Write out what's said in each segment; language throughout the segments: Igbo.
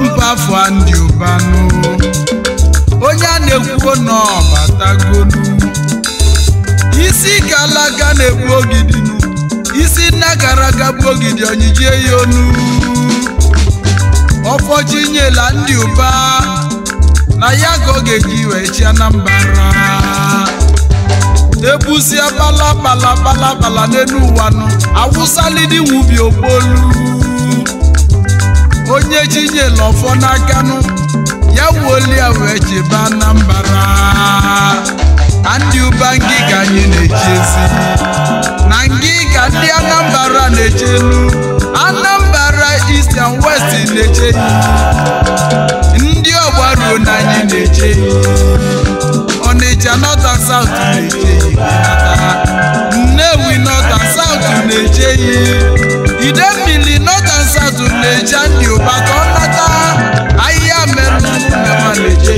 mbafụ ndị ụbanụ onye a na-ekwuo n'ọbatagonu isi galaga na-egbu ogidi isi nna gara ogidi onyijie ya onu ọfọchi nyela ndị ụba na ya ka ọ ga-eji wee na mbara ebuzie n'elu ụwa nụ nwubi onye ji nye lọfọ n'akanụ ya wuolia wee jeba na mbara ndị ụba ngịga anyị na-eji ezi na ngịga ndị anambra na-eje elu anambra east and west na-eje ndị ọgbaruo na anyị na-eje ọnịcha north and south na-eje nnewi north and south na-eje idemmili asatụ na-eje ndị ụba ka ọ nata ahịhịa mere na ma na-eje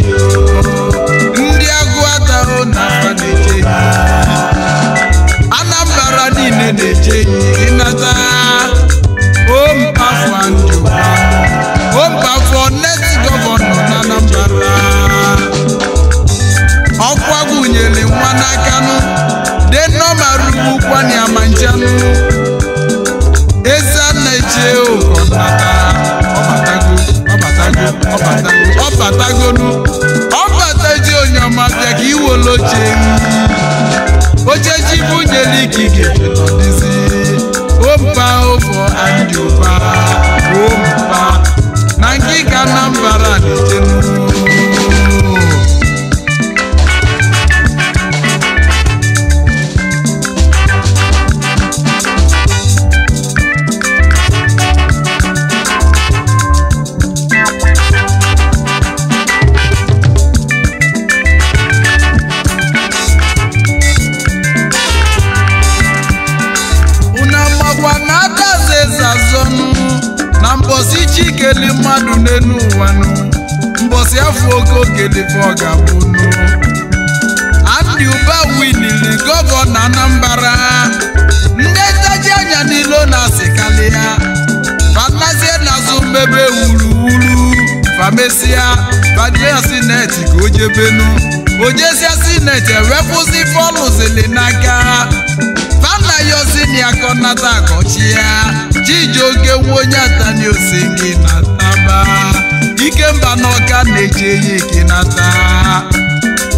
ndị agụ atarụ na ma na-eje Anambra niile na-eje ịnata o mpafụ ndị ụba chikeli mmadụ n'elu ụwa nụ mbọsị afọ oke okelefe ọ ga-abụ nụ Andy Uba winili gọvanọ Anambra ndị ntaji anya n'ilo na-asịkalị ya fanazie n'azụ mmebe wuruwuru famesia fadria sineti ka o jebenu ojesia sineti ewepụzi fọlụzili n'aka yo si ni akona ta kochia Jijo ke wonya ta ni o si ni nataba Ike mba no ka neje yi kinata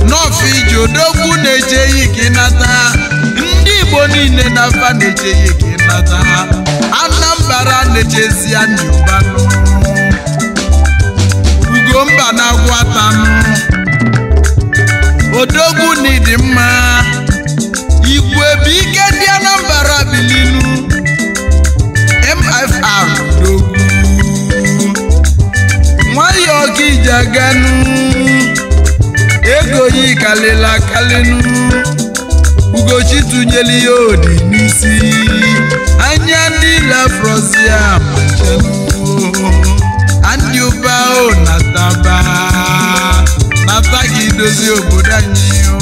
No fi jodoku neje yi kinata Ndi boni ne nafa neje yi kinata Anambara neje si anyo banu kalela kalenu ugochi tụnyeli ya odi n'isi anya dịla frozia macheluo andị ụba o nataba nata dozi dozie obodo o.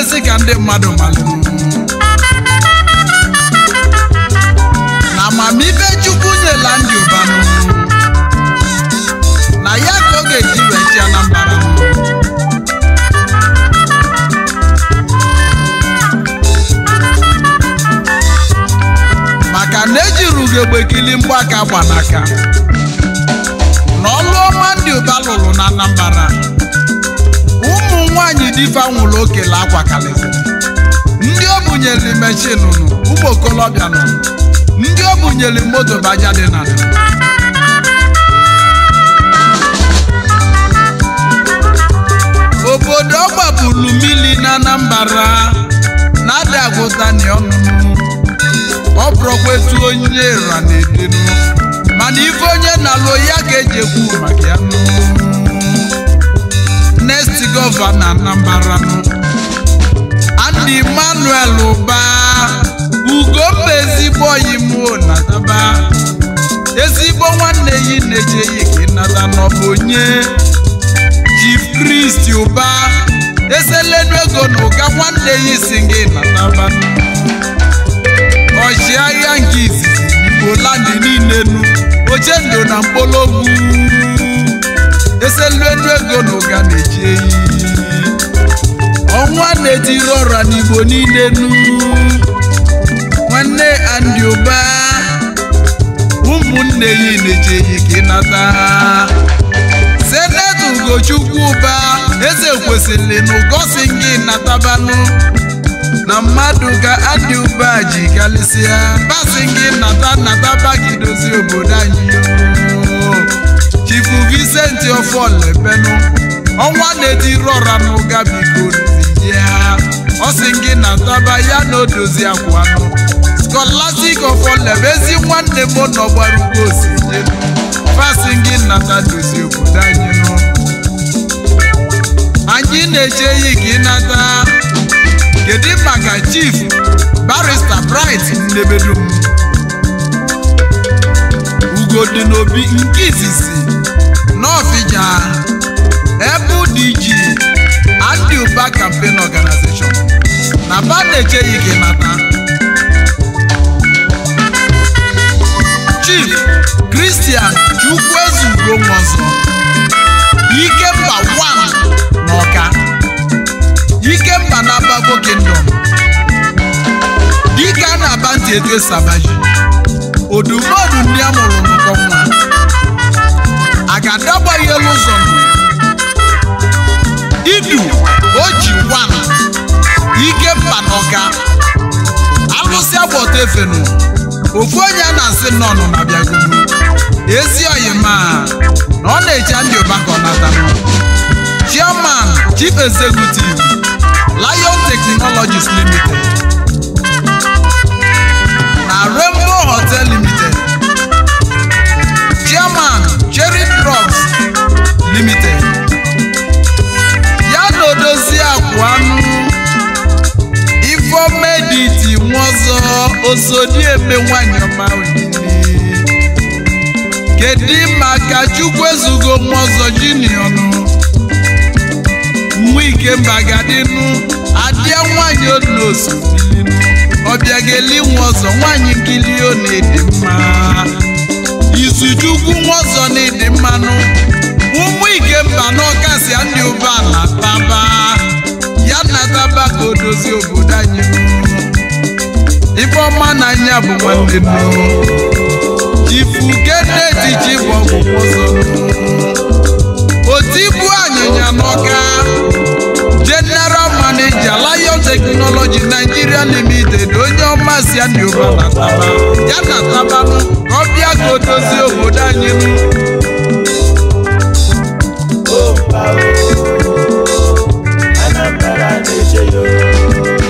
ezi ka ndị mmadụ malụ na amamibe Chukwu nyela ndị ụbanụ na ya ka ọ ga-eji wechi Anambra maka na ejiru ugogbekili mgbaka gbanaka na ọlụ ọma ndị ụba lụrụ na Anambra ụmụ nwanyị diva nwụrụ okele akwa kalịsị ndị o bunyere meshin nụ okolobịa nụ ndị o bunyere moto baja dị na obodo ọgbapụrụ mmiri na Anambra na-adagụtani ọnụnụ ọ bụrụkwa etu onye ra na-edenu mana ife onye na-alụ ya ga-eji ekwu maka ya nụ next gọvanọ Anambra and Emmanuel Ụba Ugomma ezigbo oyi m baa ezigbo nwanne yi na-ejeghị ka ịnata n'ọbụ onye Chief kristi Ụba eselenu ego na ụga nwanne ya si gị nataba ọchịagha nke izizi Igbo landị niile oche ndụ na mkpologwu ese luelu ego na na-eji eyi ọnwa na ejiri ọra n'igbo niile nu nwanne andị ụmụnne yi na-eji eyi ka ịnata senetọ ugochukwu ụba eze kwesịrị na ụgosi gị natabanụ na mmadụ ka adị ụba ji karịsịa basị gị nata nataba gị obodo anyị chifu Vincent Oforlebenu ọnwa na-edirora n'ụga biko ya ọ sị gị na ntaba ya na odozi akwa Scholastic Oforlebe ezi nwanne m n'ọgbara ugbo ugbo osinye fasi gị nata dozie obodo anyị nụ. anyị na-eche yi gị nata kedu maka chief barista bright ndebedum ugo dị n'obi nke izizi n'Ofija ebudiji dị iji Campaign Organization na ba na-echeghị gị nata Chief Christian Chukwuezugo Nwosu Ikemba ike mba Ikemba na Babo Kingdom dike a na-aba ntị etu esabaji odumodu ndị a mụrụ n'ụkọ nwa ọka alụsị agbọta efenu ofu onye a na-asị nnọọ na bịagolu ezi oyima na ọ na-eche ndị ụba ka ọ chief executive Lion Technologies Limited eme nwanyị ọma kedu maka chukwu ezugo nwa ọzọ jiniọnụ nwa ikemba gadịnụ adịa nwanyị onosu ọbịa ga-eli nwa ọzọ nwanyị nkili ọ na-ede mma chukwu nwa ọzọ na-ede mmanụ ụmụ ikemba n'ọkasịa ndị ụbọala baba ya na taba ka obodo anyị ife ọma na anya bụ nwanne m ifugedetiji bụ ọgwụgwọ ọsọ otibu anyịnya n'ọka general manager lion technology nigeria limited onye ọma si adịoba na taba ya na tabanụ ka ọ bịa ka o obodo anyị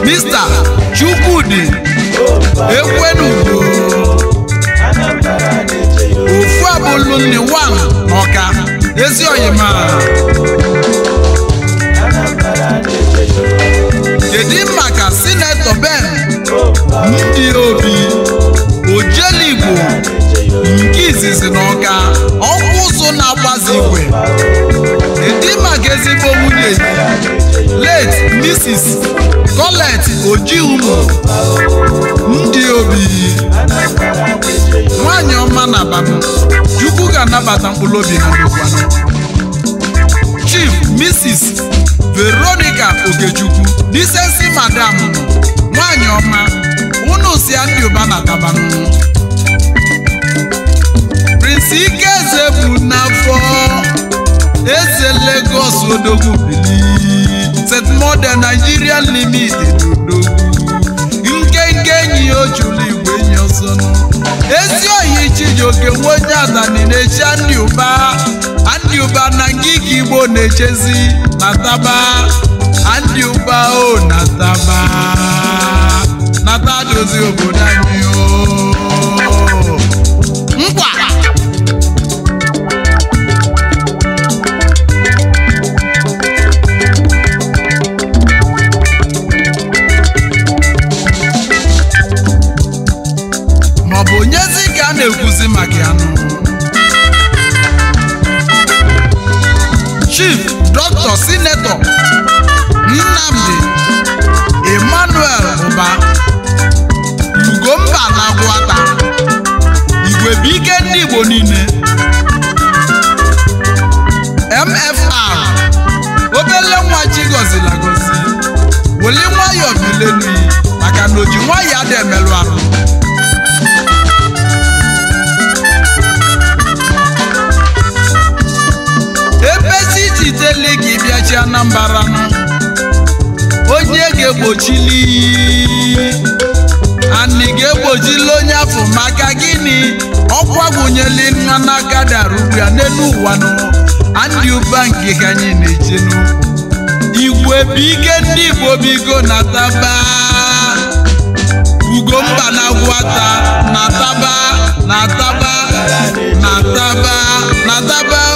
mista ekwenugo ufu abụlụ nne wan ọka ezi oyima kedu ka sinetọ ben ndị obi ojeligbo nke izizi na ọka ọkwụ ụzụ na-agbazi igwe kedu maka ezigbo nwunye late Mrs. Colette oji ndị obi nwanyị ọma na-abanụ Chukwu ga-anabata mkpụrụ obi ha n'ụkwanụ Chief Mrs. Veronica Okechukwu disensi madam nwanyị ọma unu si ndị ụba na-atabanụ Prince Ikeze bụ n'afọ eze Lagos odogwu bili St. Modern Nigerian Limit odogwu ojula igwe enyi ọsọ ezi oyi oke nwa onye adani na-echi ndị ụba ndị ụba na ngịga igbo na-echezi na taba anị ụba o oh, na taba nata dozie obodo anyị Igbo MFR obele nwa ji gọzila gọzi weli nwayọọ bilenu maka na oji nwayọọ adị emelụ ahụ ebezi iji tele gị bịachi Anambra onye ga-egbochili anị ga-egbojila onye afọ maka gịnị ọkwa gụnyela nwa n'aka dara n'elu ụwa nụ andị ụba nke ka anyị na eche n'ukwu igwe bụ ike ndị igbo bigo na taba ugomba na gwata na taba na taba na taba na taba